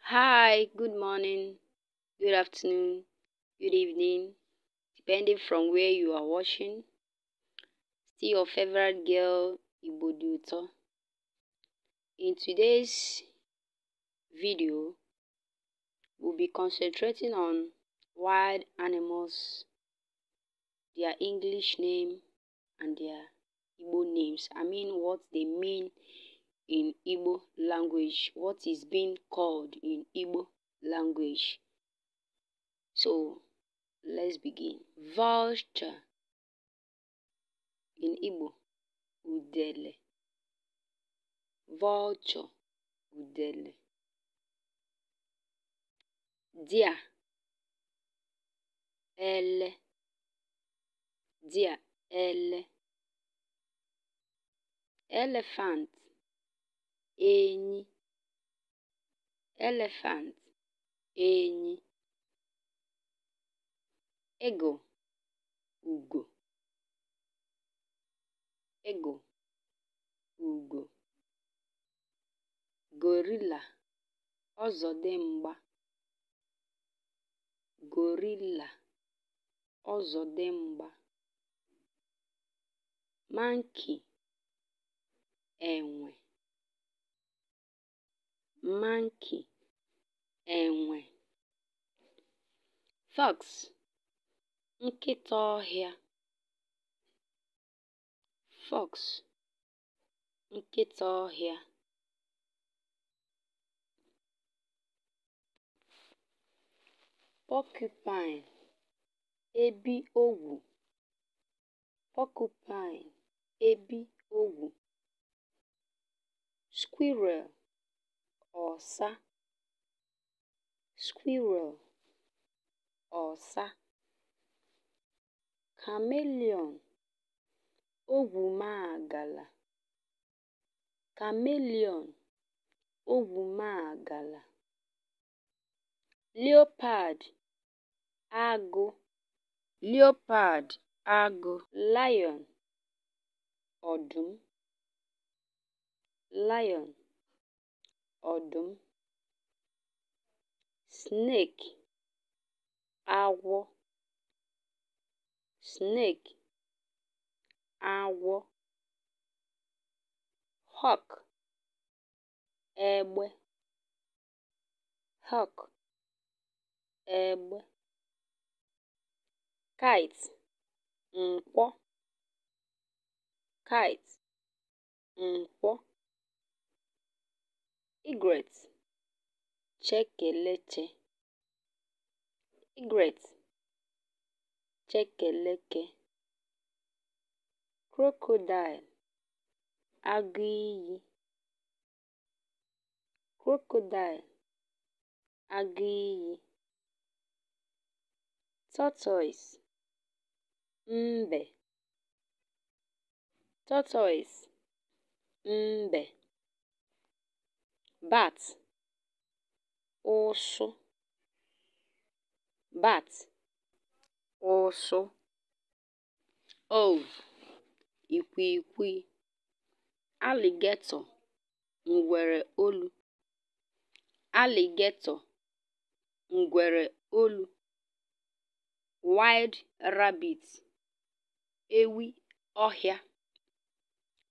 Hi, good morning, good afternoon, good evening, depending from where you are watching. see your favorite girl, Ibodiuto. In today's video, we'll be concentrating on wild animals their English name and their Igbo names. I mean what they mean in Igbo language, what is being called in Igbo language. So let's begin. Vulture in Igbo, udele. Vulture, udele. Dia, ele. dia ele elephant enyi elephant enyi eagle ugo eagle ugo gorilla ọzọdimgba gorilla ọzọdimgba mankey enwe mankey enwe fox nkịta ọhịa fox nkịta ọhịa porcupine ebi ogwu porcupine ebi ogwu squirrel ọsa squirrel ọsa chameleon ogwumaagala chameleon ogwumaagala leopard agụ leopard agụ lion ọdụm lion ọdụm snake awọ, snake agwọ hawk egbe hawk egbe kite nkwọ kite, nkwọ, egret, chekeleche crocodile, agụiyi crocodile, iyi tortoise, mbe tortoise mbe bat ụsụ bat ụsụ owl ikwiikwii alligator ngwere olu alligator ngwere olu wild rabbit ewi ọhịa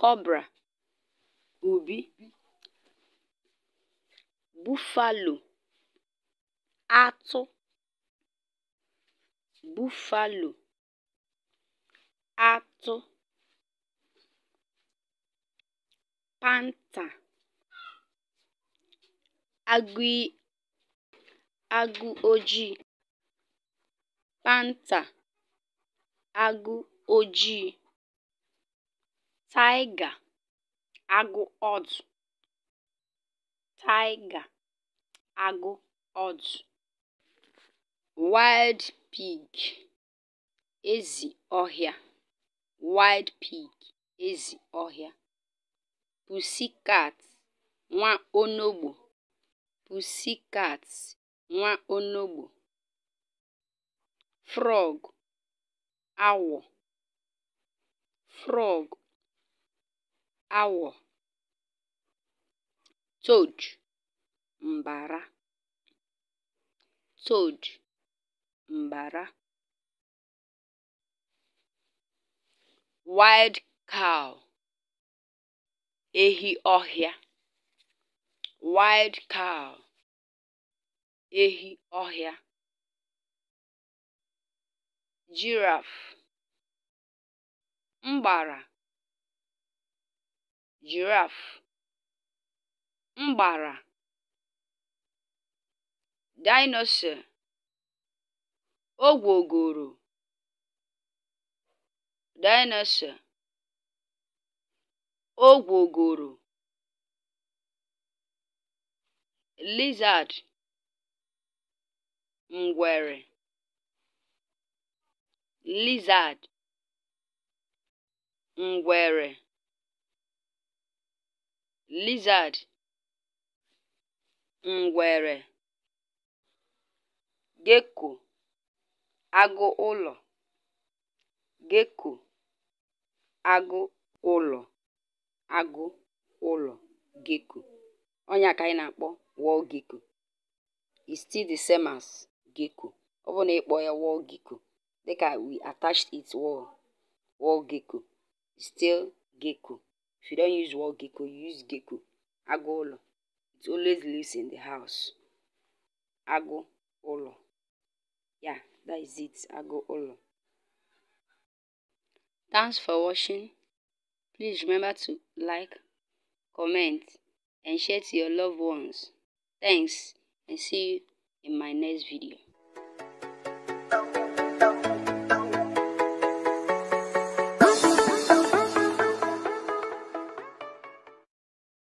Cobra, ubi, buffalo, atụ, buffalo, atụ, panta agụ ojii, panta agụ ojii tiger agụ ọdụ tiger agụ ezi ọhịa wild pig ezi ọhịa pussycat nwa onogbu frog awọ frog awọ toad mbara toad mbara wild cow ehi ọhịa wild cow ehi ọhịa giraffe mbara Giraffe mgbara Dinosaur Ogwogoro Dinosaur Ogwogoro Lizard Ngwere Lizard Ngwere lizard ngwere gecko agụụlọ gecko agụụlọ agụụlọ gecko ọnya ka anyị na-akpọ wall gecko is still the same as gecko ọ bụrụ na ịkpọ ya wall gecko dịka we attached it wall wall gecko still gecko If you don't use wall gecko, you use gecko. Agolo. It always lives in the house. Agolo. olo. Yeah, that is it. Agolo. olo. Thanks for watching. Please remember to like, comment, and share to your loved ones. Thanks, and see you in my next video.